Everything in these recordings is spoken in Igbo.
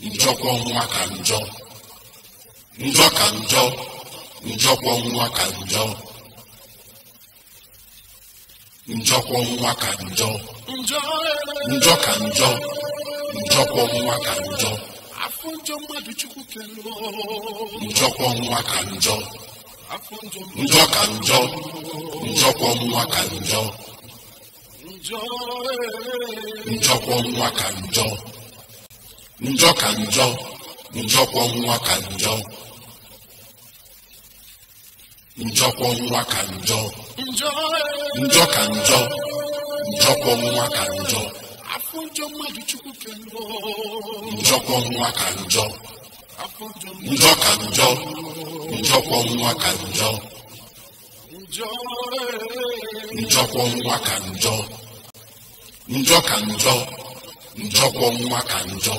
njọkwọ ọnwụnwa ka njọ njọ ka njọ njọkwa ka njọ ka njọ njọ ka ka njọ njọ ka njọ njọkwọ nwa ka njọ nwa ka njọ njọ ka ka njọ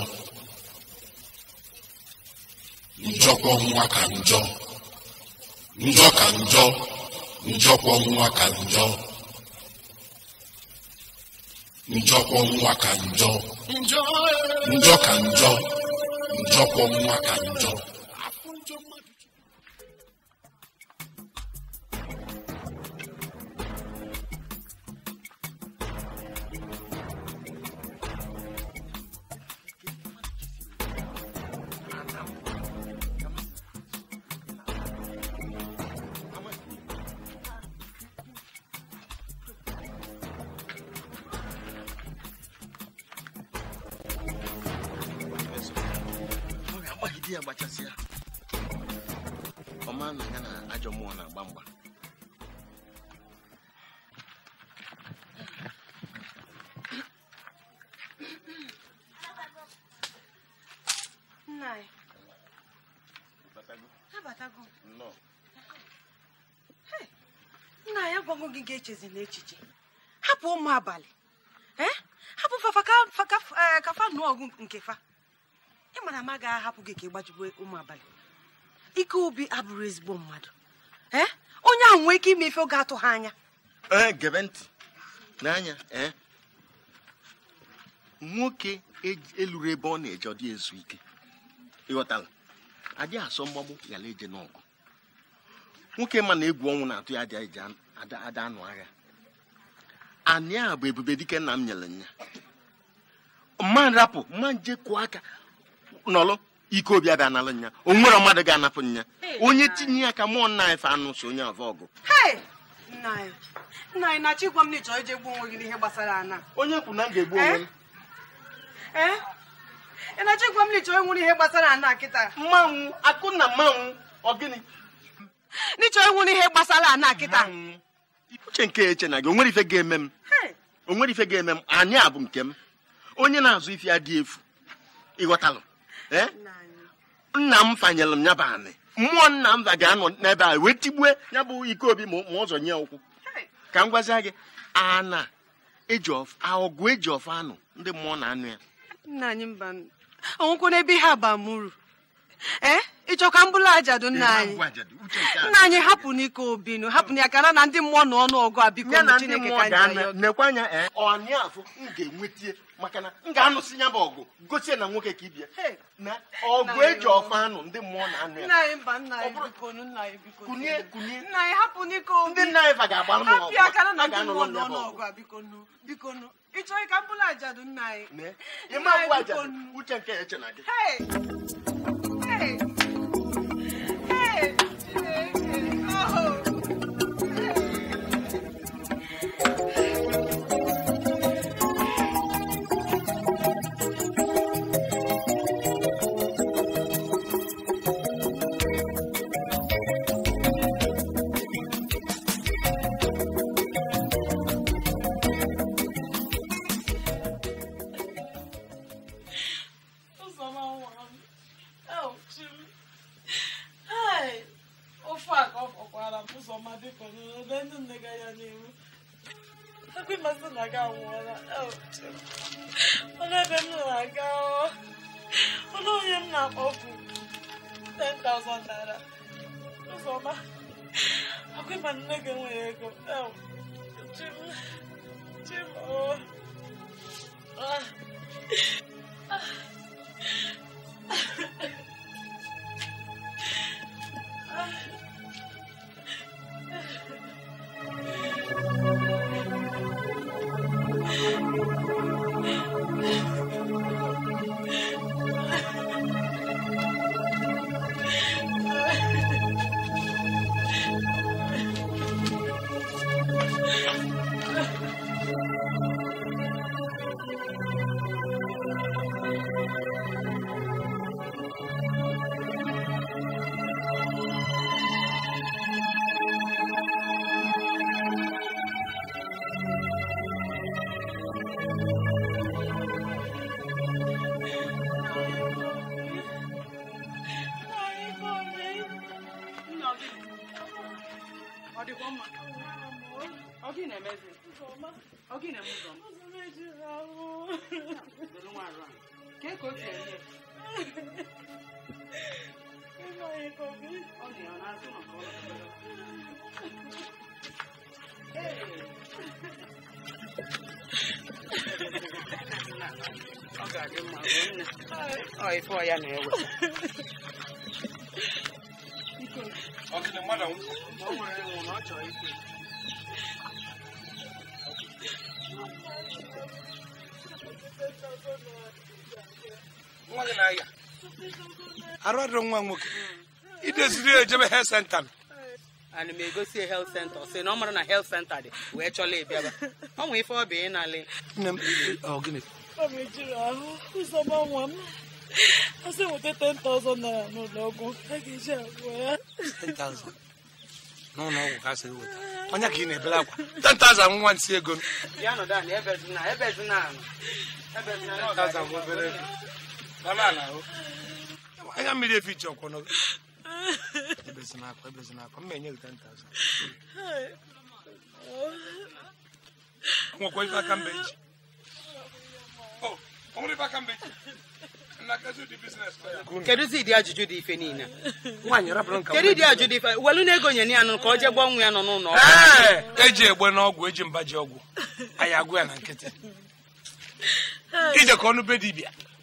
njọkwa nwa ka njọ njọ ka njọ njọkwa nwa ka njọ njọkwa nwa ka njọ njọ ka njọ njọkwa e. nwa ka njọ nke echezi na echiche hapụ ụmụ abalị hapụ fafa eh, fa nụọ ọgụ nke fa ị mara ma gaa hapụ gị ka ị gbajugbe ụmụ abalị ike obi abụrụ ezigbo mmadụ onye ahụ nwee ike ime ife oge atụ ha anya eh, gebe ntị n'anya eh. nwoke e-, eluru ebe ọ na-eje ọ dị ezu ike ịghọtala adịghị asọ mgbagbu ghara eje n'ọgụ nwoke ma na egwu ọnwụ na-atụ ya adịghị eje ada anụ agha anyị a bụ ebube dike nna m nyere nya mma rapụ ma nje kụọ aka nọlụ ike obi abịa nalụ nya o nwere mmadụ ga-anapụ nya onye tinye ya ka mụọ nna anyị anụ so onye avọ ọgụ nna anyị na-achọ m na ịchọ ije gbuo onwe gị n'ihe gbasara ana onye kwu na m ga-egbu onwe eh? Eh? ị na-achọ m na ịchọ ịnwụrụ n'ihe gbasara ana kịta mmanwụ akụ na mmanwụ ọ gịnị Na ịchọ ịnwụrụ n'ihe gbasara ana kịta uche nke eche na gị onwere ife ga-eme m onwere ife ga-eme m anyị a bụ nke m onye na-azụ ife ya dị efu ịghọtalụ eh? nna m fanyelụ m ya bụ anị mmụọ nna m ga-anọ n'ebe a wee tigbue ya bụ ike obi ma ụzọ nye ụkwụ ka m gwazie gị ana aọgụ ọgụ eji ọfọ anụ ndị mmụọ na anụ ya nna anyị mba onwekwa n'ebe ihe abamuru. ee eh? ịchọka mbụlụ ajadu nna anyị nna anyị hapụ n'ike obinu hapụ ya kana na ndị mmụọ na ọnụ ọgụ a biko na chineke ka nekwe anya eh, ọnya afụ m ga-enwetie maka na m ga-anụsị ya bụ ọgụ gosi na nwoke ka ibia na ọgụ eji ọfa anụ ndị mmụọ na-anụ ya kunye kunye ndị nna anyị fa ga-agba m ọgụ ịchọghị ka mbụlụ ajadu nna anyị ịma mbụ ajadu uche nke eche na gị Hey. nwa nwoke idoziri ejebe health center ana m egosi health center si na ọ mara na health center dị wee chọla ịbịaba ọ nwe ife ọ bụ ịnalị asị nweta 10,000 naira n'ụlọọgwụ a ga-eji agwọ ya 10,000 n'ụlọ ọgwụ sị weta onye ka ị na-ebere akwa 10,000 nwa nsị ego não. nọ dan ebe dị na ebe dị na ebe dị na anya mmiri efiche ọkwọnọ ọkwụ akwa ajụjụ dị ife niile kedu ajụjụ dị ife welu na-ego nye ya nụ ka ọ jee ọnwụ ya nọ n'ụlọ eji egbe n'ọgwụ eji mba ji ọgwụ anyị agwụ ya na nkịtị ije ka ọnụ be dibia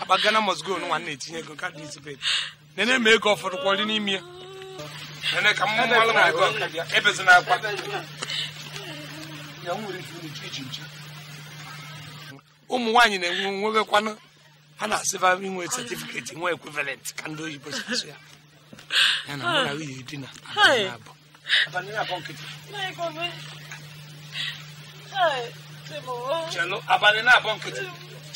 akpa gana mosgo nwa na-etinye ego nka dizipet nene ma ego ọfọdụ kwọrị n'ime ya nene ka mmụọ mmalụ na ego ebezi na akwa ụmụ nwaanyị na-enwe nwegekwanụ ha na-asịba inwe setifiketi nwe ekwivalent ka ndị oyibo si asụ ya ya na mụ na nwunye di na abụ abalị na-abọ nkịtị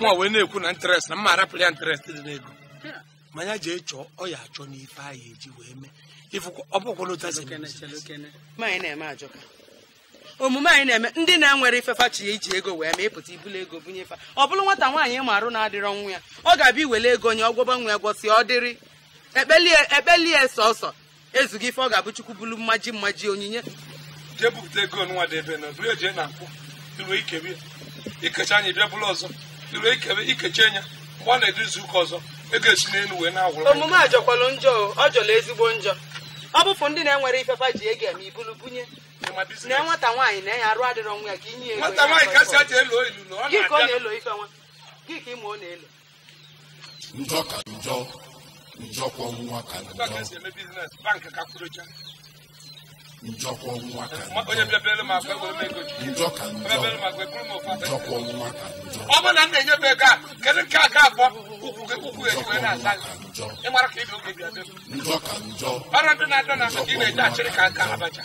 nwa wee na-ekwu na interest na mma arapụrụ ya interest dị n'ego manya jee chọọ ọ ya achọ n'ife anyị eji wee mee omume anyị na-eme ndị na-enwere ifefa chi ya iji ego wee mee ịpụta ibulu ego bunye fa ọ bụrụ nwata nwaanyị ịma arụ na-adịrọ nwa ya ọ ga-abịa iwere ego nye ọgwọba nwa egwo si ọ dịrị ekpelie e, sọsọ ezughị ife ọ ga-abụ chukwu bulu mmaji mmaji onyinye jee bupụta ego nwa dị ebe e na ike ikecha anyị bịa bụrụ ọzọ duru ekebe ikechi enya mgbe ọ na-edu ụka ọzọ ego esi n'elu wee na-agwụrụ omume a jọkwalụ njọ ọ jọrọ ezigbo njọ ọ bụpụ ndị na-enwere ifefa ji ege ma ibulu bunye na nwata nwaanyị na-enye arụ adịrọ nwa ya ka inye ego ọ na ka ọ na-elo ife nwa gị ka ịma ọ na-elo njọkọ nwa ka njọ ka njọ njọkọ nwa ka njọ. ọ bụrụ na m na-enye m ego a kedu nke a ga-abọ ukwu gị ukwu ejiwe na-asa ịmara ka ibi oge bịa njọ ka njọ ọrụ ndị na-adọ na ị na-eji achịrị ka nka abacha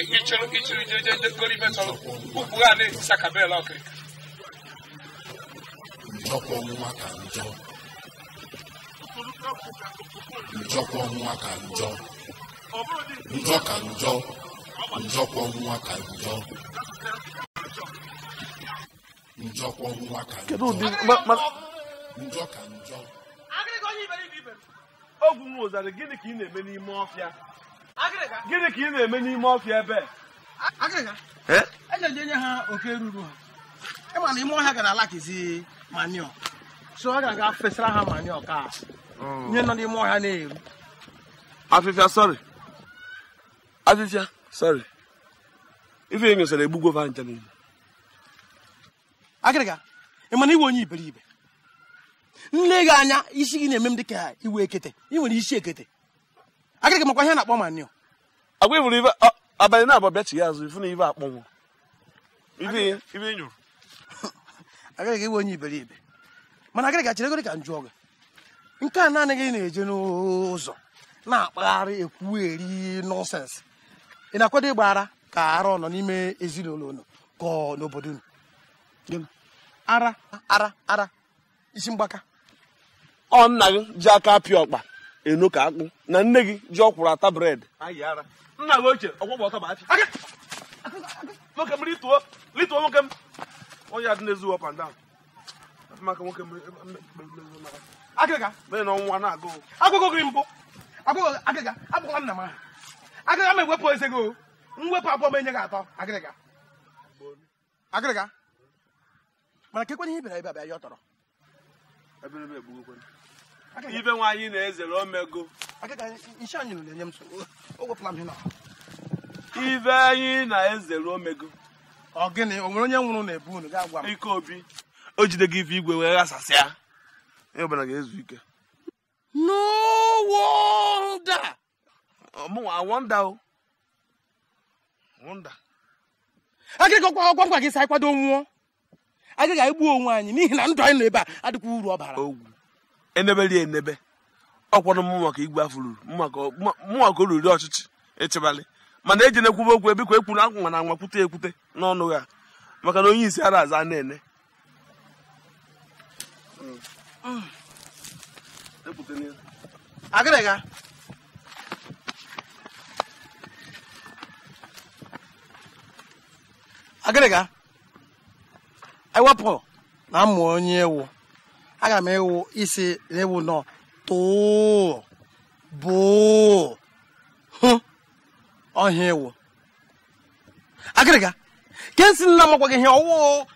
ichiri ichiri jejeje gori metọrọ ukwu ha na-etisa ka bel ọkịrịka njọkọ nwa ka njọ njọkọ nwa ka njọ njọ ka njọ njọkwa nwa ka njọ njọkwa nwa ka njọ njọ ka njọ ogwu nwa ụzara gịnị ka ị na-eme n'ime ọfịa gịnị ka ị na-eme n'ime ọfịa ebe ejeje e nye ha oke ruru ha ịma na ime ọhịa gara alakizi manio so ọ ga-aga fesara ha manio ka oh. nye nọ n'ime ọhịa na-eru afịfịa sọrị abịbịa sorry ife nyosara egbugwo fa ncha niile agịrịga ị mana iwe onye iberibe nle gị anya isi gị na-eme m ka iwe ekete ị nwere isi ekete agịrịga makwa ihe na-akpọ manio agwa ifuru ife abalị na abọ bịachi ya azụ ifu na ife akpọnwụ ife ife nyụrụ agịrịga iwe onye iberibe mana agịrịga cheregoro ka m jụọ gị nke a naanị gị na-eje n'ụzọ na-akpagharị ekwueri nọnsensị ị na-akwado ịgba ara ka ara ọ nọ n'ime ezinụlọ unu ka ọ n'obodo unu ara ara ara isi mgbaka ọ nna gị ji aka apịa ọkpa eno ka akpụ na nne gị ji ọkwụrụ ata bred nna gị ochie ọgwọgwọ ọtọ gị mbụ agụgụ agịga nna m agaghị m ewepụ eze gị mwepụ abụọ m enye gị atọ agịrịga agịrịga mana ka ekwenye ihe bịara ebe abịa ya ọ tọrọ ibe nwaanyị na-ezere omego nshe anyị na ibe anyị na-ezere omego ọgịnị gịnị o nwere onye nwụrụ na-ebu unu gaa gwa m ike obi o jidego ife igwe wee ghasasịa ịbara ga-ezu ike n'ụwa ọrụ daa ọmụnwa wọnda gị sa anyị kwado nwụọ agaghị anyị gbuo onwe anyị n'ihi na ndụ anyị nọ ebe a adịkwa uru ọ bara ogwu eneberi enebe ọkwanụ m maka igwe afọ ruru mụnwa ka o ọchịchị echebalị mana eji na-ekwube okwu ebikwa ekwuru akwụnwa na anwa kwute ekwute n'ọnụ ya maka na onye isi ara aza na-ene agịrịga agịrịga ewepụ na mmụ onye ewu aga m ewu isi na ewu nọ tụụ bụụ hụ ọhịa ewu agịrịga ke nsi nna m gwaghị ihe ọwụ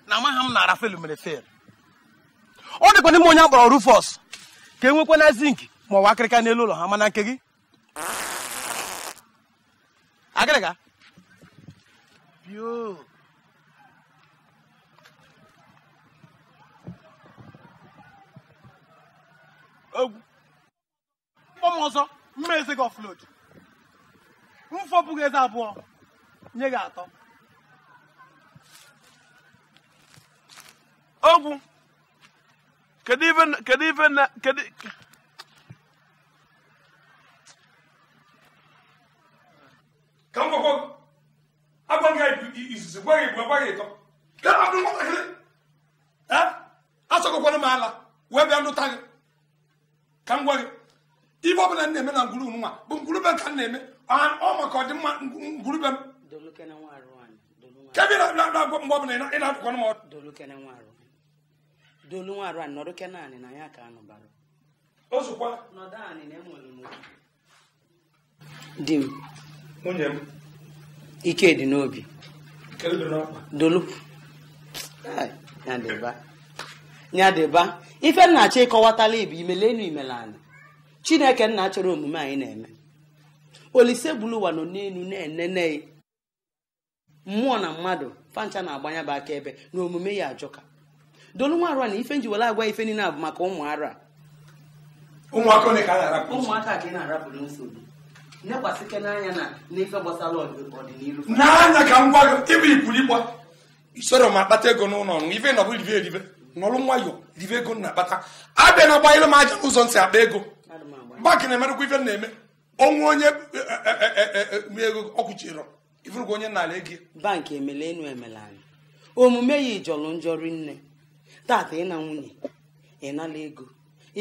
na amaghị m na Arafelu mere fel ọ dịkwa n'ime onye akpọrọ Rufus ka enwekwa na zinc ma ọ bụ akịrịka n'elu ụlọ ha mana nke gị agịrịga egwu mkpọm ọzọ mma eze gị ọflod mfọbụghị eze abụọ nye gị atọ ogwu kedu ife kedu ife na kedu ka m gwakwa agwaghị izizi gwaghị igbo agwaghị ịtọ asọgokwana m ala wee bịa ndụta gị ka m gwa gị ibe ọbụla na-eme na ngwurube nwa bụ ngwurube ka m na-eme ọ maka ọdịmma ngwurube m kebi na-agwa mgbe ọbụla ị na-adụkwa m ọdụ na ya ka anụbara di m m ike dị n'obi dolu nyadịba ife nna achọ ịkọwatala ibe imelenu imele anyị chineke nna chọrọ omume anyị na-eme olise gburu nọ n'elu na-enene mmụọ na mmadụ fancha na-agbanya bụ aka ebe na omume ya ajọka dolu nwa arụ na ife njiwere agwa ife niile bụ maka ụmụ ara ụmụaka ka ị na-arapụrụ nsogbu nekwasịke n'anya na n'ife gbasara ọdịnihu n'anya ka m gwa gị ịbụ ikwuru ịgba isoro m akpata ego n'ụlọ ọnụ ife na nọbụ ribe eribe n'ọlụ nwayọ ribe ego na-akpata abịa na agbanyere m aja ụzọ ntị akpa ego mgbakị na-emerekwa ife na-eme onwe onye e, e, e, ego ọkwụchirọ ifurukwa onye na-ala ego bankị emele enu emele anyị omume ya ijọlụ njọ nne tata ịna nwunye ịnala ego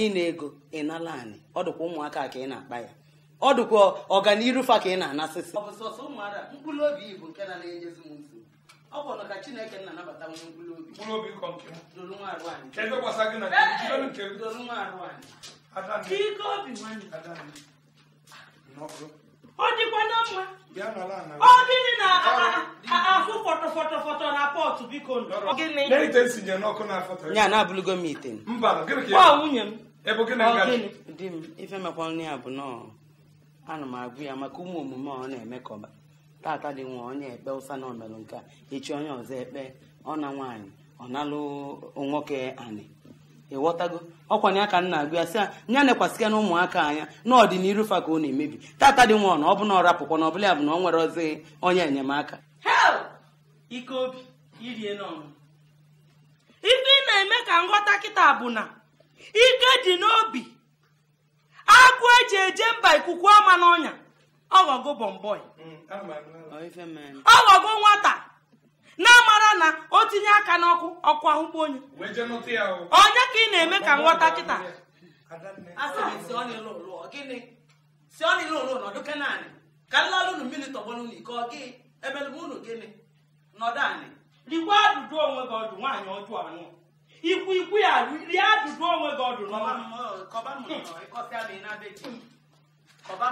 ịna ego ịnala anyị ọ dịkwa ụmụaka ka ị na-akpa ya ọ dịkwa ọganiru fa ka ị na-anasịsị ọ bụ na ka chineke na-anabata onye mkpụrụ obi mkpụrụ nwa arụ anyị kedu gbasa gị na nke dolu nwa arụ anyị ka ike obi nwanne ọ dịkwa na mma ọ gịnị na ahụ fọtọfọtọfọtọ na pọtụ biko ya na abụlụgo m ite ọ nwunye m di m ife mekwa nri ya bụ nọọ ana m agụ ya maka ụmụ omume ọ na-eme kọba tata dị nwa onye ekpe ụsa na omerụ nke echi onye ọzọ ekpe na nwaanyị ọ nalụ nwoke anị ịghọtago ọkwanye aka nna agụ ya sị ya nya nekwasịka na ụmụaka anya n'ọdịnihu fa ka ọ na-emebi tata dị nwa na ọ bụ na ọ rapụkwa na ọbụla ya bụ na ọ nwere ọzọ onye enyemaka ike obi ị na-eme ka nghọta kịta bụ na ike dị n'obi agụ eji eje mba ikuku ama n'ọnya ọghọgo bọmbọị ọghọgo nwata na-amara na o tinye aka n'ọkụ ọkụ ahụkwa onye onye ka ị na-eme ka nghọta kịta rikwa adụdụ onwe gị ọdụ nwaanyị anụ ikwu ikwu ya rie onwe gị ọdụ ọba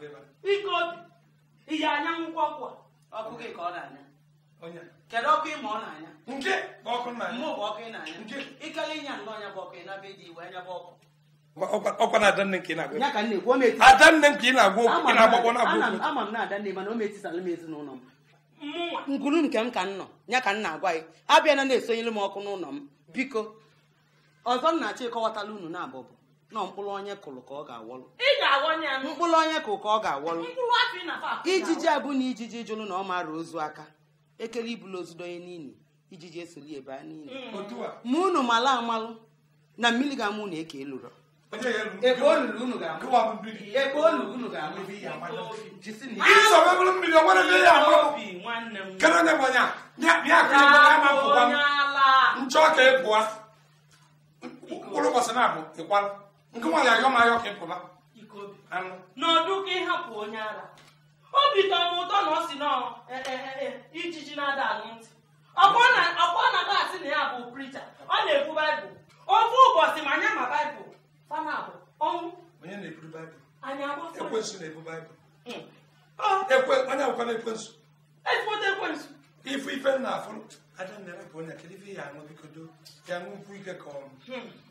m ihe anya nkwụ ọkụ ọkụ ka ọ na-anya kedu ọkụ ịma ọ na-anya mụ bụ ọkụ ị na-anya ikele ịnya ọnya bụ ọkụ ị iwe anya bụ ọkụ ọkwa nke m ezinụlọ nke m ka nọ ya ka m na-agwa gị na-esonyere m ọkụ n'ụlọ m biko ọzọ m na-achọ unu na-abụbụ nọ mkpụrụ onye kụrụ ka ọ ga-awọlụ mkpụrụ onye ka ọ ga-awọlụ ijiji abụ na ijiji jụlụ na ọ mara ozu aka ekele ibulu ozudo onye niile ijiji esoli ebe a niile hmm. ma unu mala amalụ na mmiri ga-amụ na eke elụrọ ebe nchọ ka e mkpụrụ na-abụ ịkwala nke nwa ga-aga m ahịa ọka ịpụba anụ n'ọdụ ka ịhapụ onye ara obi tọrọ m ụtọ na ọ si nọ e, e, e, ijiji na-ada ala ntị na klaasị na ya bụ pricha ọ na-ekwu baịbụl ofe ụbọchị ma anya ma baịbụl ọnwụ onye na-ebu baịbụl na-ebu baịbụl ya aṅụ ike ka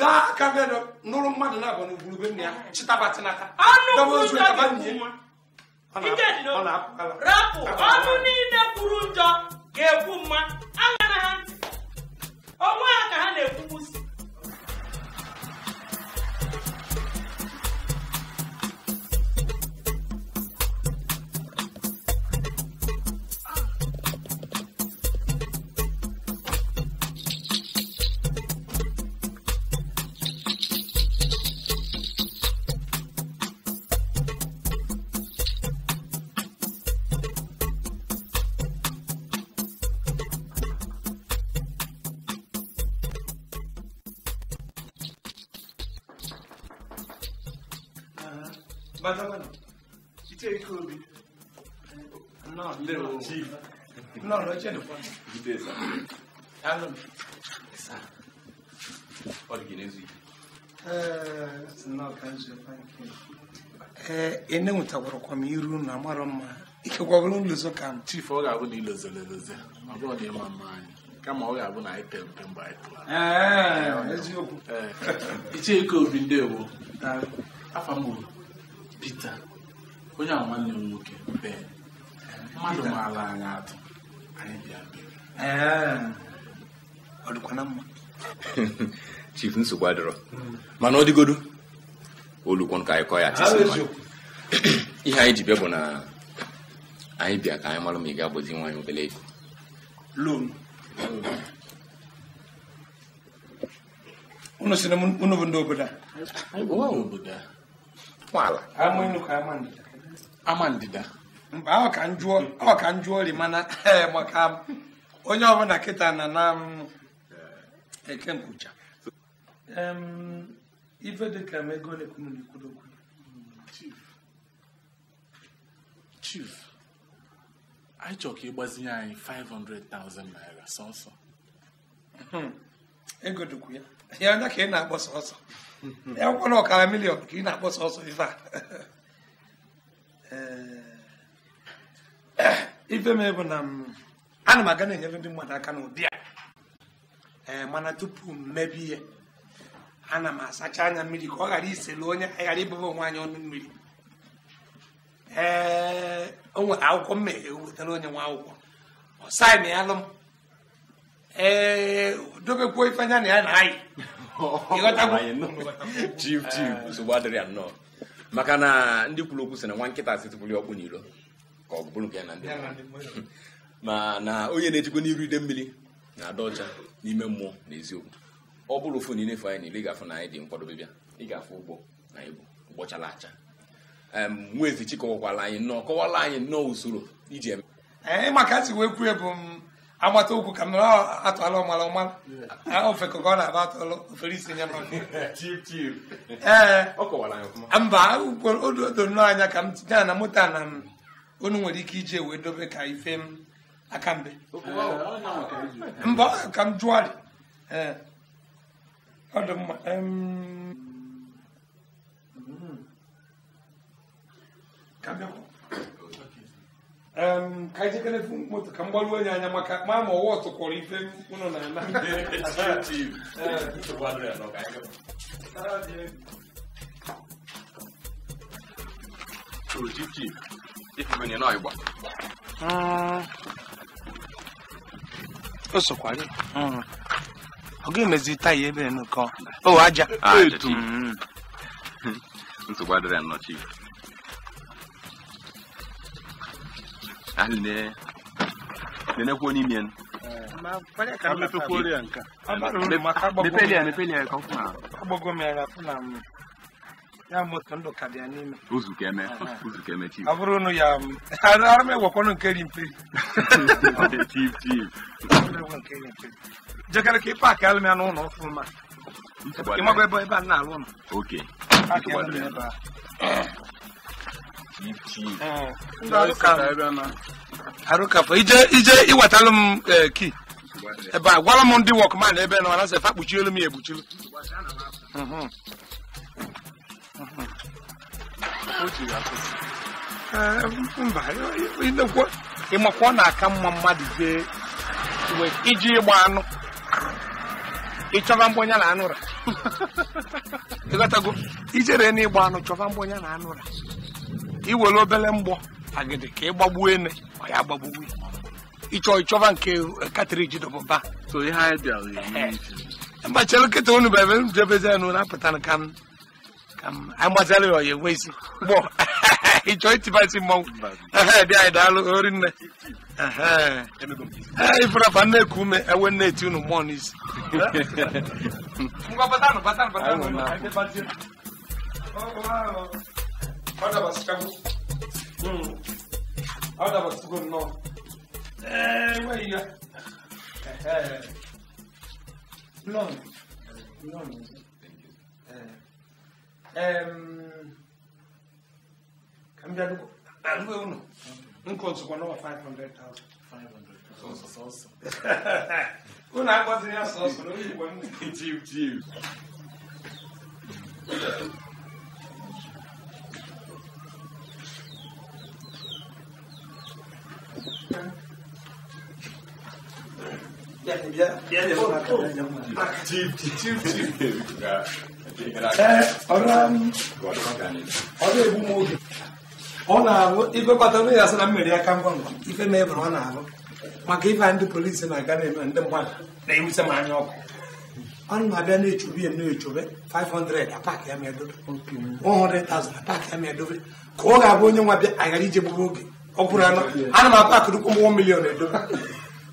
daa aka be nụrụ mmadụ na-abụ n'ugburu nne ya ah. chịtabata n'aka rapụ ọnụ niile kwuru njọ ga egbu mma agara ha onwe ha ka ha na egbu 마담은 기대 그 나, 레오. 나, 레제노. 기대사. 알람. 사. 어디기네지. 에, 나 간지 파이케. 에, 에네 우타고로 코미루 나마람마. ike gwagoro nlezo ka m chief ọ ga-abụ na ilezo leloze ọ bụrụ na ịma mma anyị ọ ga-abụ na anyị pere mpe mgbe anyị ndewo Pita onye a nwanne m nwoke bee mmadụ maara anyị atụ anyị bịa ọ dịkwana mma chief nsogbu adịrọ mana ọ dịgodu olukwon ka anyị kọọ ya ihe anyị ji bịa bụ na anyị bịa ka anyị mara ma ị ga-agbazi nwa anyị obere ego unu si na unu bụ ndị obodo a ala ama ndida Mgbe ahụ ka njụọ mana eh, maka onye ọbụla kịta na na mm, eh, eke mkpucha ife dịka m ego na chief anyị chọrọ ka ịgbazinye anyị 500,000 naira sọsọ hmm. ego dịkwu ya ya onye ka ị na-akpọ sọsọ akwụkwọ na ọkara milion ka ị na-akpọ ọsọ ife a ife m bụ na ana m aga na-enyere ndị mmadụ aka n'ụdị a ee eh, mana tupu m mebe ihe ana m asacha anya mmiri ka ọ ghara isele onye ghara ibụba onwe anyị ọnụ mmiri ee eh, o nwere akwụkwọ m ewetara onye nwa akwụkwọ ọ saịn ya alụ m ee eh, dobekwa ife anya na ya na anyị chif chif eh. nsogbu adịrị ya nnọọ maka na ndị kwuru okwu sị na nwa nkịta asị tụpụrụ ọkpụ n'iro ka ọ bụrụ nke ya na ndị ma na onye na-ejikwa n'iru ide mmiri na-ada ọcha n'ime mmụọ na eziokwu ọ bụrụ ofu na ị na-efu anyị na ịgafụ na anyị dị nkwadobe bịa ịgafụ ụgbọ na ibu ụgbọchala acha nwa ezi kọwakwala anyị nnọọ kọwala anyị nnọọ usoro iji eme. Eh, maka ntị wee kwuo ebu m agbata ụkwụ ka m nọrọ atụala ọmala ọmala ofe ka ọ na-aba atụlụ ofere isi nya ee ah, mba odo nnọọ anya ka m tinye na moto na m nwere ike ije wee dobe ka ife m aka mbe mba ka m jụọ ọ dị mma ka anyị jekere moto ka m onye anya maka ma ma ọwa ọtụkwọrọ ife ụnụ na ana o sokwa ga-emezi taya ebe nnukọ aja ntụgbadịrị nnọchi ne nenekwo n'ime n mepelia mepelia ka ọfụma agbago m ya na afụ na m ya moto ka eh, eh. ya ka ka eme ya na-alụ ije iwetalụ m ki ebe a gwara m ndị wọkman ebe na efe m ya ekpuchiri ịmakwa na-aka mma mmadụ jee iji ịgba anụ ịchọba mgbonya na anụra ịghọtago ijere na anụ chọba mgbonya na anụra iwere obere mgbọ agidi ka ịgbagbuo ene ọ ya gbagbuo ịchọ ịchọba nke katriji dọbụba so ihe nkịta unu bụ ebe m jebezi na-apụta ka m ka m agbazara ya isi gbọ ịchọ itibasi mmanwụ dị anyị daalụ ori nne na-eti unu mmụọ n'isi Orada bas kabul. Hmm. Orada bas kabul no. Eee vay thank you, Blond. Eh. Um, cambia algo, algo é uno. Un conso quando va 500,000. 500,000. Sosso. Una cosa di sosso, non mi vuoi. Giu, giu. ọ na-arụ igwekọta nụ ya asị na mmiri aka ngwa ngwa ife na-ebere ọ na-arụ maka ife ndị polisi na-aga na-eme ndị mmadụ na-ewute m anya ọkụ ọ na-abịa na-echobe ya na-echobe 500 apak ya ma edobe 100,000 apak ya ma edobe ka ọ ga-abụ onye nwa bịa aghara ije gburu oge ọ bụrụ anọ ana m apakụrụkwu m 1 milion edobe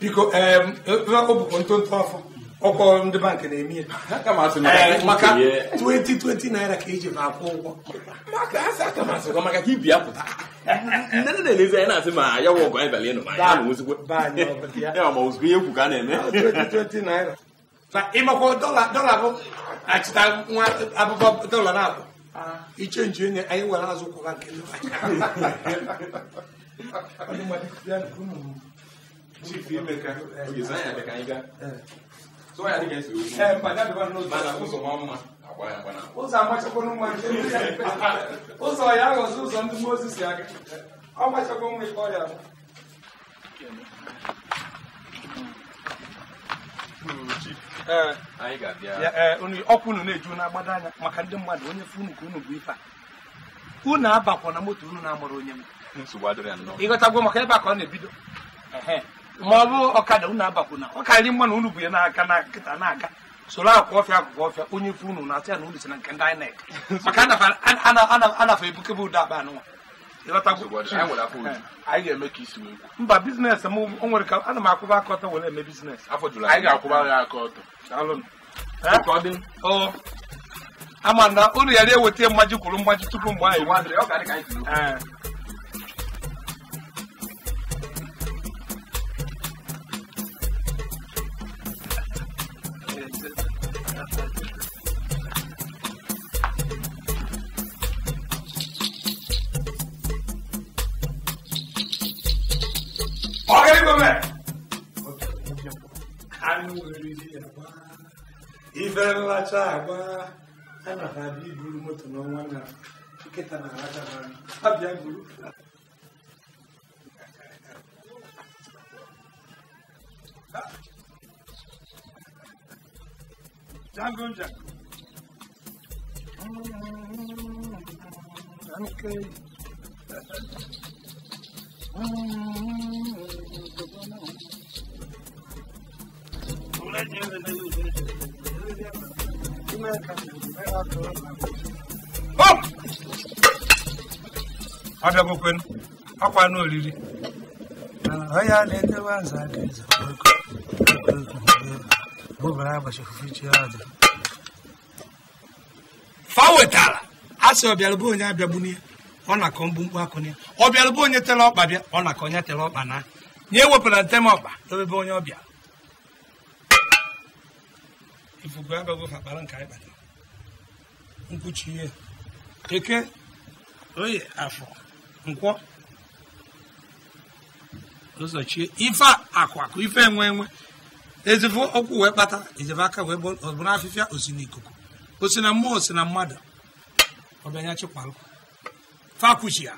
biko ọbụkwa ntonto afọ ọkwa ndị bankị na-eme ya maka 2020 eh, naira ka eji ma akwụ ụgwọ maka ibi apụta nne nne na-elezi na-asị ma ya ọgụ anyị bịara ya na ma ihe kwu ka a na-eme na ịmakwa dọla bụ achịta nwa abụba dọla na-abụ ah. ichenji onye anyị nwere azụ kwụra nke chief Emeka ogezi anya dị ka anyị gaa so ya dịka esi ozi mana ụzọ ma mma ya agba na ụzọ ụzọ ya aghọzi ụzọ ndị Mozis si aga ọ gbachakwa nwa ike ọrịa na-eju na-agbado anya maka ndị mmadụ onye funu ka unu bụ ife a unu abakwa na moto unu na-amụrụ onye m ịghọtagwo maka ebe a ka ọ na-ebido ma ọ bụ ọkada unu abakwuna ọ karịrị mma na unu bụ ya n'aka na nkịta na-aga soro akwụ ọfịa akwụkwọ ọfịa onye fe unu na-asị ya na unu si na nke ndị INEC maka anafa ebukebe ụda aba anụnwa mba biznes m o nwere ka ana m akwụba aka ọtọ were eme biznes ama amanda unu ghara eweta mmaji kwuru mmaji tupu mgbe anyị ife nlacha agba a na abịa iburu moto n'ọnwa na nkịta na alacha abịa buru é Django Django. Okay. Let's hear the news. abịagokwe akwa na oriri onye a na nza aka eze bụbara fa wetara a sị ọbịara bụ onye abịagbu n'ihe ọ na-akọ mkpu akụ bụ onye ọkpa bịa ọ na-akọ onye tere ọkpa nye ntem ọkpa ebe onye ọbịa ifufe abago akpara nka ịkpata nkwuchi ihe eke oye afọ nkwọ ụzọchie ife akwakụ ife enwe enwe ezifo ọkwụ wee kpata ezefe aka wee ọbụrụ afịfịa osi n'ikuku osi na mmụọ osi na mmadụ ọbịanya chịkwarụ fa kwuchi ya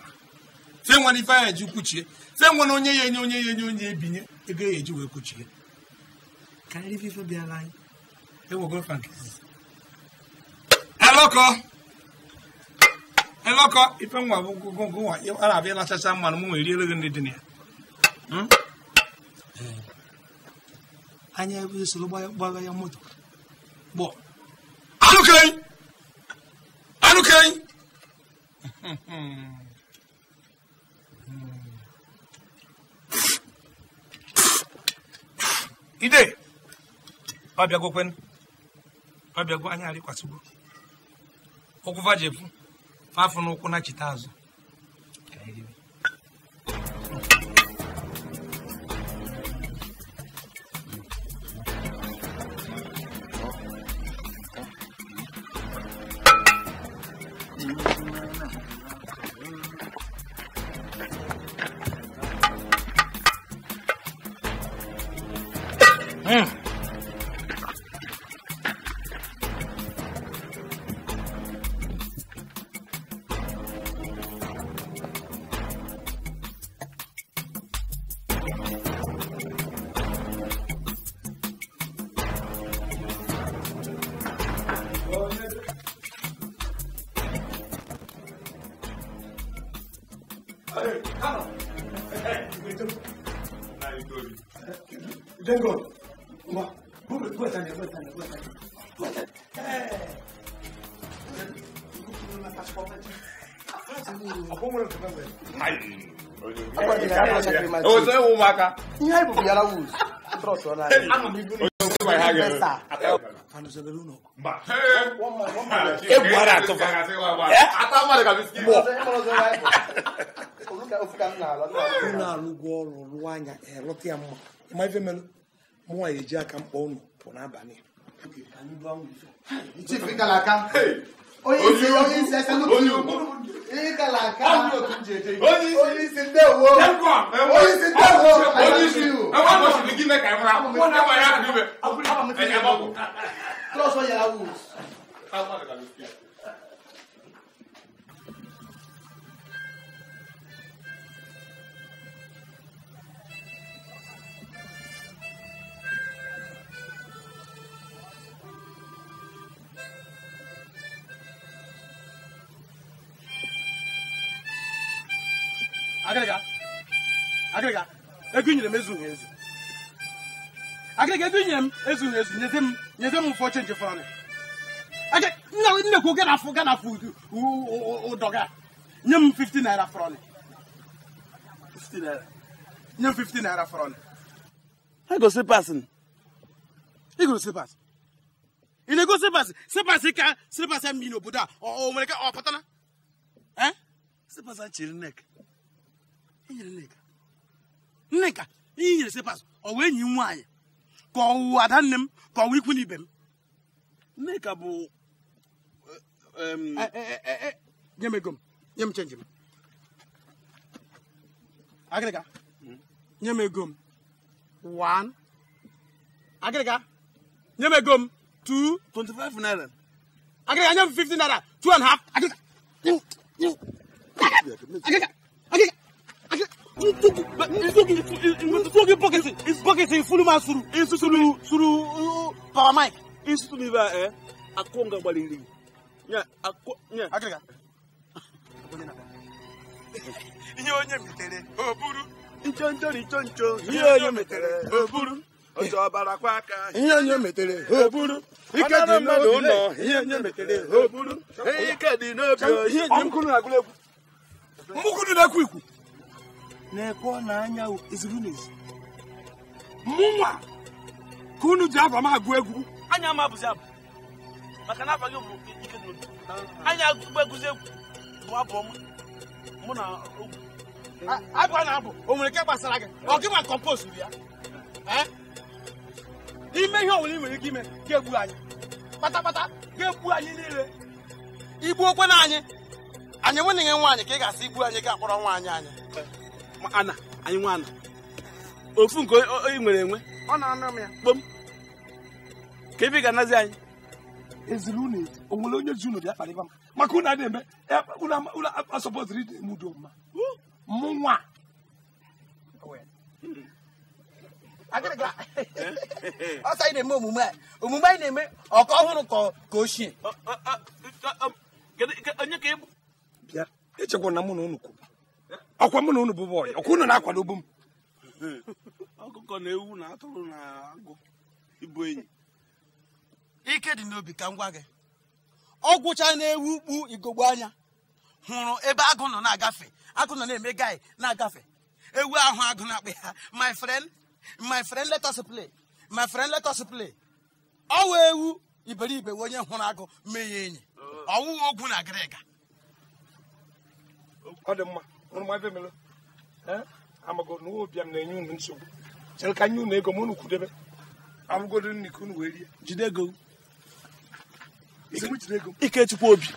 fe nwere ife ya eji kwuchie fe nwere onye ya enye onye ya enye onye ebinye ego ya eji wee kwuchie karịa ife bịara anyị ewo go fan. eloko eloko ife nwa bụ gongo nwa ara abịa lachacha mmanụ m nwere eriere gị ndị dị na ya anya ebe esoro gbaga ya moto gbọ anụkei anụkei ide ọ bịagokwen ọbịagwo anya arịkwasịgbo ụkwụ vajepu fafụ n'ụkwụ na chita azụ Thank you. ụmụaka oh, ihe anyị bụbụ yara wuz egwu ara atụfa unu alụgo ọrụ rụọ anya eh, lụta ya mma eji aka mkpọ unu pụ n'abalị onye isi aka n'otu ịgalaka onye isi ndewo onye isi ndewo onye isi ebe a gosiri gị meka ịmụrụ akwụkwọ na agba ya adịbe trọsọ yara wus agịrịga agịrịga ego nyere m ezu ezu agịrịga ego nyere m ezu nyezi m m ụfọ chenji fọrọ nnekwu ganafụ ganafụ ụdọga nye m 50 naira fọrọ nye m 50 naira fọrọ egosi pasị igosi pasị ị na-ego sịpasị sịpasị ka sepas mmiri n'obodo a o nwere ka ọ pụtara sịpasị chiri nek nneka ihe nyere sepas ọ wee enyi m nwaanyị ka ọwụ ada nne m ka ọwụ ikwu n'ibe m nneka bụ e, e, e, nye m ego m nye m chenji m agịrịga hmm? nye m ego m one agịrịga nye m ego m two twenty five naira agịrịga nye m fifty naira two and a half agịrịga agịrịga nsogi bɔkiti bɔkiti fuluma suru isusulu suru pagamai isusulu bɛ ɛ a ko nga gbalili ɲɛ a ko ɲɛ a kɛlɛ i y'o ɲɛ mitɛrɛ o buru ncontori nconco i i bi na kule na na-ekwe na anya ezigbo n'ezi mụnwa ka unu ji abụ m agụ egwu anya ama abụzi abụ maka na abaghị bụ ike n'obi anya agụgba egwuzi egwu bụ abụ ọma mụ na ogwu abụ na-abụ o nwere nke gbasara gị ọ gị ma kọmpost ya n'ime ihe ọwụla ị nwere ike ime ga-egbu anyị kpatakpata ga-egbu anyị niile igbuokwe na anyị anyị nwenye nwe nwaanyị ka ị ga-asị igbu anyị ga-akpọrọ nwaanyị anyị ana anyị nwa ana ofu nke onye nwere enwe kpom ka ebe ị ga-anazi anyị eziri unu ezi o nwere onye ji unu bịa kparịba m maka ụna na eme mma mụ nwa ọsọ anyị na-eme omume a omume anyị na-eme ọka ọhụrụ ka ochie onye ka na mụ na unu kwuru ọkwa mụ na unu bụ bọyị ọkwa unu na-akwado obu m ọkụkọ na ewu na atụrụ na agụ ịbụ enyi ike dị n'obi ka m gwa gị ọ gwụcha na-ewu ukpu igogbo anya hụrụ ebe agụ nọ na-agafe agụ nọ na-eme gai na-agafe ewu ahụ agụ na-akpa ya my friend my friend let us play my friend let us play ọ ewu iberibe onye hụrụ agụ mee ya enyi ọwụwa ogwu na agịrịga ọ dị mma unu ma ebe amago na obi m na-enye unu nsogbu chere ka nye unu ego ma unu kwudebe abụgodo nri unu wee rie jide ego ikechukwu obi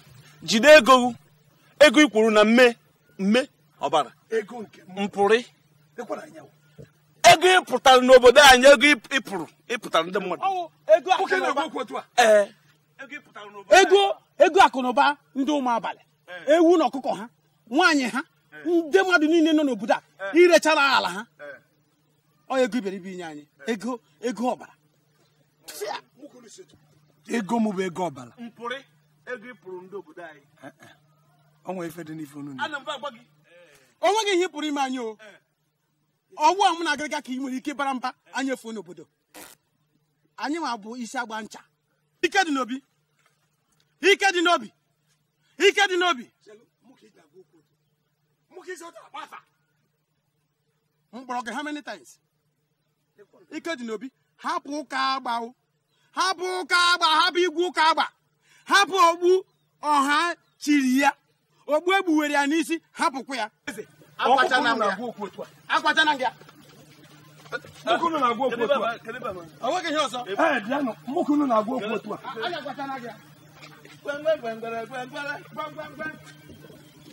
jide ego ego i kwuru na mme mme ọbara mpụrị ego n'obodo anyị ego pụrụ ịpụtara ndị mmadụ ego ndị ụmụ abalị ewu na ọkụkọ ha nwaanyị ha ndị mmadụ niile nọ n'obodo a eh. irechara ala ha eh. ọ ego iberibe inye anyị eh. ego ego ọbara ego mụ bụ ego ọbara gị ihe pụrụ ime anyị o ọwụ a mụ na agịrịga ka ị nwere ike bara mba anyị efuo n'obodo anyị ma bụ isi agba ncha ike dị n'obi ike dị n'obi ike dị n'obi mkpọrọ gị ha many times ike dị n'obi hapụ ụka agba hapụ ụka agba hapụ igwe ụka agba hapụ ogbu ọha chịrị ya ogbu egbuwere ya n'isi hapụkwa ya akwachana ya onweghị ihe ọzọ mụkunu na-agwa okwu otu a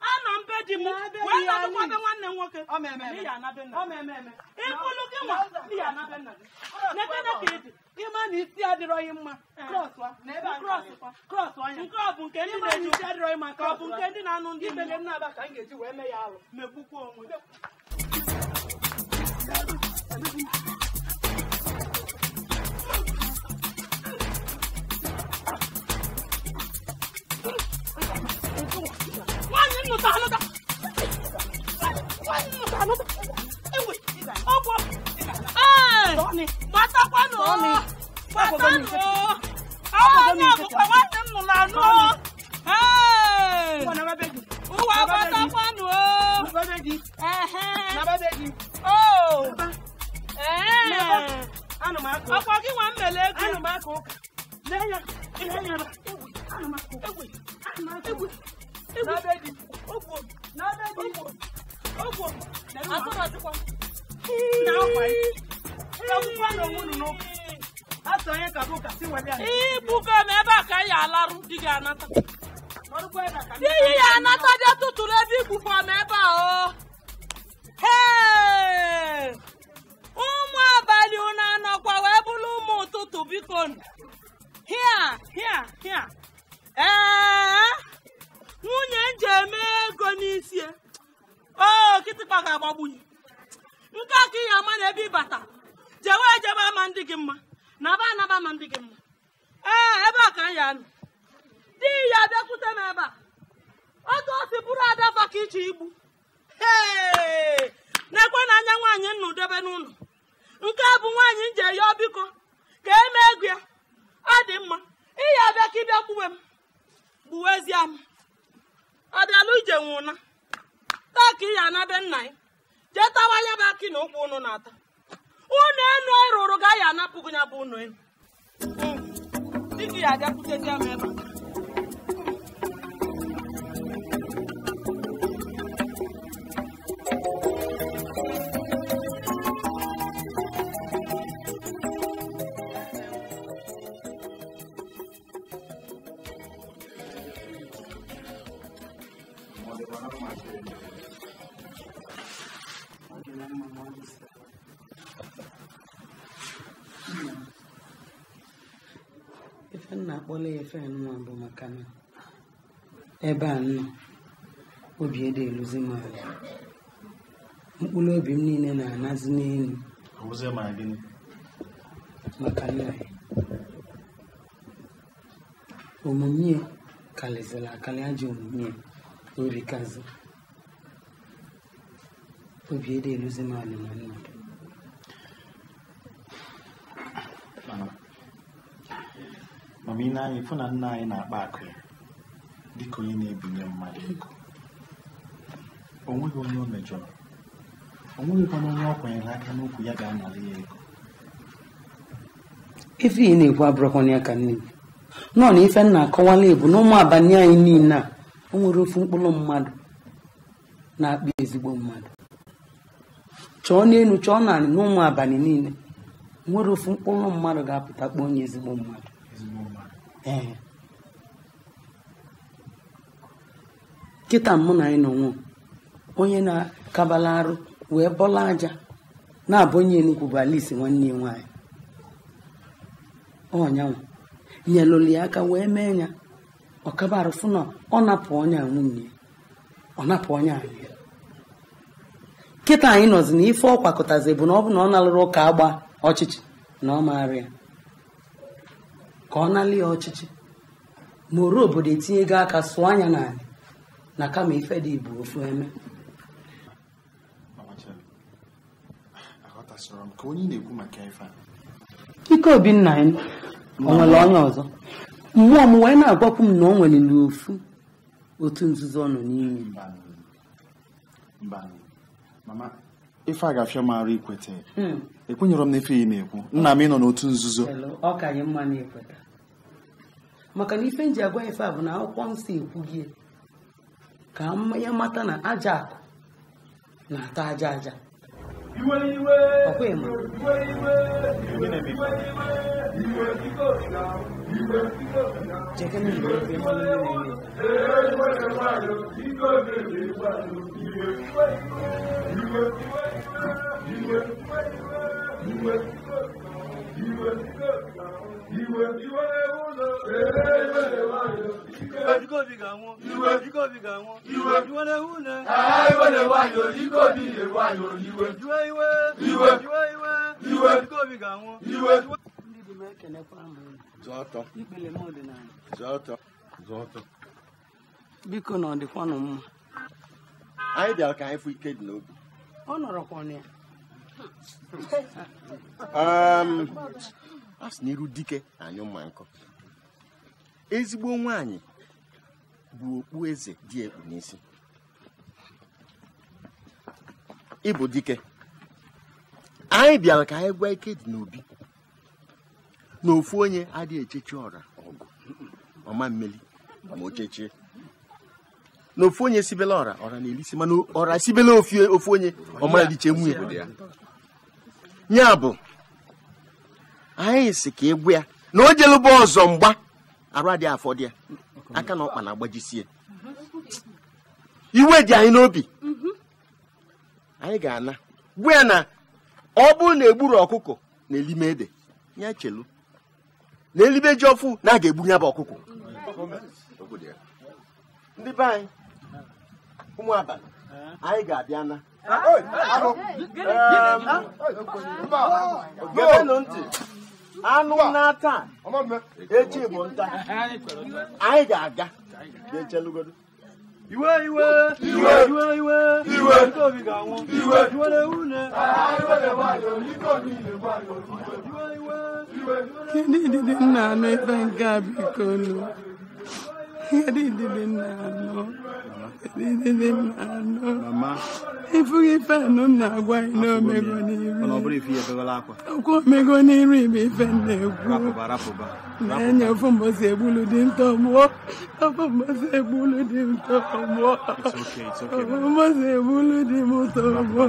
a na mbe di m wee na-adụkwa be nwanne m nwoke ịkpụlụ gị nwa ya anabe nna gị n'ebe ka dị, ịma na isi adịrọghị mma krọs eh. ọnya nke ọ bụ nke ndị na-eji isi adịrọghị mma ka ọ bụ nke ndị na-anụ ndị ibele m na-aba ka m ga-eji wee mee ya alụ megbukwa onwe nụta anụta nụta anụta ewe ọgwọ ee gbatakwanụ gbatanụ onye ọbụkwa nwanne m nụrụ anụ ee ụwa gbatakwanụ ọkwa gị nwa mmele ego Ewe, ewe, ewe, ewe, ewe, ewe, ewe, ewe, ewe, ewe, ewe, ewe, ibuga ebe a ka anyị alarụ di gị anata di ya anata dị tụtụrụ ebe igbufa m ebe a o ụmụ abalị unu anọkwa wee bụrụ ụmụ ụtụtụ biko hia hia hia ee nwunye m ji eme ego n'isi e. o kịtịkpa ga-agbagbu ya nke a ka ihe ama na ebe ịbata jewe ejebe ama ndị gị mma na aba anaba ama ndị gị mma ee ebe a ka anyị anọ di ya bịakwute m ebe a otu o bụrụ adafa ka iche igbu ee na-ekwe na anya nwaanyị nnu debe n'ụlọ nke a bụ nwaanyị m ji eyọ biko ka eme ego ya ọ dị mma ihe abịa ka ịbịa gbuwe m gbuwezie m ije nwụna taa ka ị ya anabe nna ya jee tawa ya bụ akị na ụkwụ ụnụ na-ata ụnụ enu ịrụrụ e ga ya anapụgụ ya bụ ụnụ enu hm. dịka ya abịakwutezi m ebe a ife nwa bụ maka na ebe a nọ obi ede eluzi m ala mkpụrụ obi m niile na-anazi n'elu maka nna ya omume karịzịrị akali ajọ omume orikazi obi ede eluzi m ala na mmadụ mana ị na-anya ịfụ na nna anyị na-akpa akụ ya dịka onye na-ebinye mmadụ ego o nweghị onye o mejọrọ o nweghịkwana onye ọ kwanyere aka n'okwu ya ga-anara ya ego ife ị na-ekwu abụrụkwana ya ka nne m nọ na ife na-akọwala ebu na ụmụ abalị anyị niile a o nwere ofu mkpụrụ mmadụ na-akpa ezigbo mmadụ chọọ n'elu chọọ naanị n'ụmụ abalị niile nwere ofu mkpụrụ mmadụ ga-apụta kpọọ onye ezigbo mmadụ ee m mụ na anyị nọ nwụọ onye na-akabala arụ wee bọla aja na-abụ onye enugwu bụ alisi nwanne ya nwaanyị ọnyanwụ nyelụli aka wee mee ya ọkabarụ na ọ napụ ọnya nwunye ọ napụ ọnya anyị kịta anyị nọzi na ife ọ kwakọtazi bụ na ọ bụ na ọ nalụrụ ụka agba ọchịchị na ọ maara ya ka ọ nala ya ọchịchị ma oru obodo etinye gị aka sụọ anya n'ala na kama ife dị bụ ofu eme ike obi nna ya o onye ọzọ mmụọ m wee na-agwakwu m na o nwere n'ofu otu nzuzo ọ nọ n'ime ife a ga-afịa mara ikweta ekwenyere m na ife ya na-ekwu nna m ịnọ n'otu nzuzo maka na ife nji agwa ife a bụ na akwụkwọ nsọ gị ka ya mata na aja akụ na-ata aja aja ọ̀pọ̀ You jẹ́kẹ́ ní ìlú You mọ́ nínú ilé. iwe gàwọn. Ìwé ga gàwọn. iwe iwe Biko na ọdịkwanụ mma. Anyị bịara ka anyị fụ ike dị n'obi. Ọ nọrọkwa ya. Um, a sị na iru dike mma ezigbo nwaanyị bụ okpu eze dị ekpu n'isi ịbụ dike anyị bịara ka anyị gwa ike dị n'obi na ofu onye adịghị echechi ọra ọgụ ọma mmeli ma ochechie. chechie na ofu onye sibela ọra ọra na-elisi mana ọra sibela ofu onye ọmara dịche nwunye ya bụ anyị sị ka egwu ya na o jelụba ọzọ mgba arụ adịghị afọ ya aka na ọkpa na-agbajisie iwe dị anyị n'obi anyị ga-ana gbu ya na ọ bụrụ na egburu ọkụkọ na elime ede ya chelu na elibe ji ọfụ na a ga-egbu ya bụ ọkụkọ ndị be anyị ụmụ abalị anyị ga-abịa na ntị anụ n'aka echi bụ nta anyị ga-aga ga-echelugodo iwe iwe iwe iwe iwe iwe ndị obi ga iwe iwe iwe nna nke a Edididi na-anọ. Edididi na agwa anyị omego n'iru. Okwu omego n'iru ibe ife na-ekwu. Na-enye ofu mbọsi egbulu dị nta ọgbụọ. Ofu mbọsi egbulu dị nta ọgbụọ. Ofu mbọsi egbulu dị m ụtọ ọgbụọ.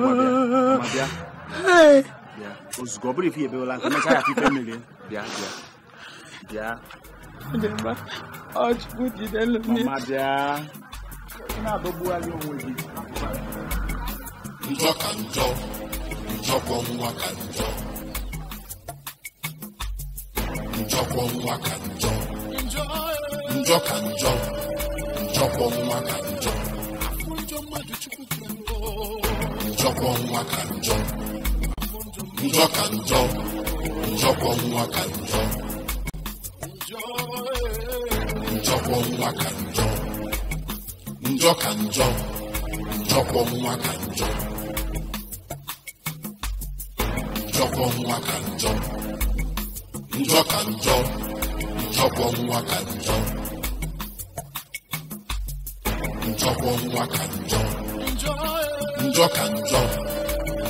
Ozugbo ọ bụrụ ife ya ebewela akwa. Mechaa ya ife mmiri. Bịa bịa. Bịa. ọchukwu jidelu na-adọgbugharị onwe gị njọ ka njọ njọkwọ nwa ka njọ njọkwọ nwa ka njọ njọ ka njọ njọkwọ nwa ka njọ ka njọ njọkwọ nwa ka njọ njọkwa nwa ka njọ njọ ka njọ njọkwa nwa ka njọ njọkwa nwa ka njọ njọ ka njọ njọkwa nwa ka njọ njọkwa nwa ka njọ njọ ka njọ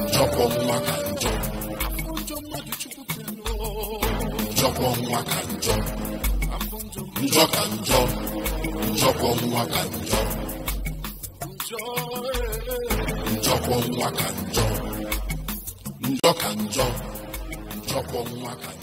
njọkwa nwa ka njọ njọkwa nwa ka njọ njọ ka njọ njọkwa nwa ka njọ njọkwa nwa ka njọ njọ ka njọ njọkwa nwa ka njọ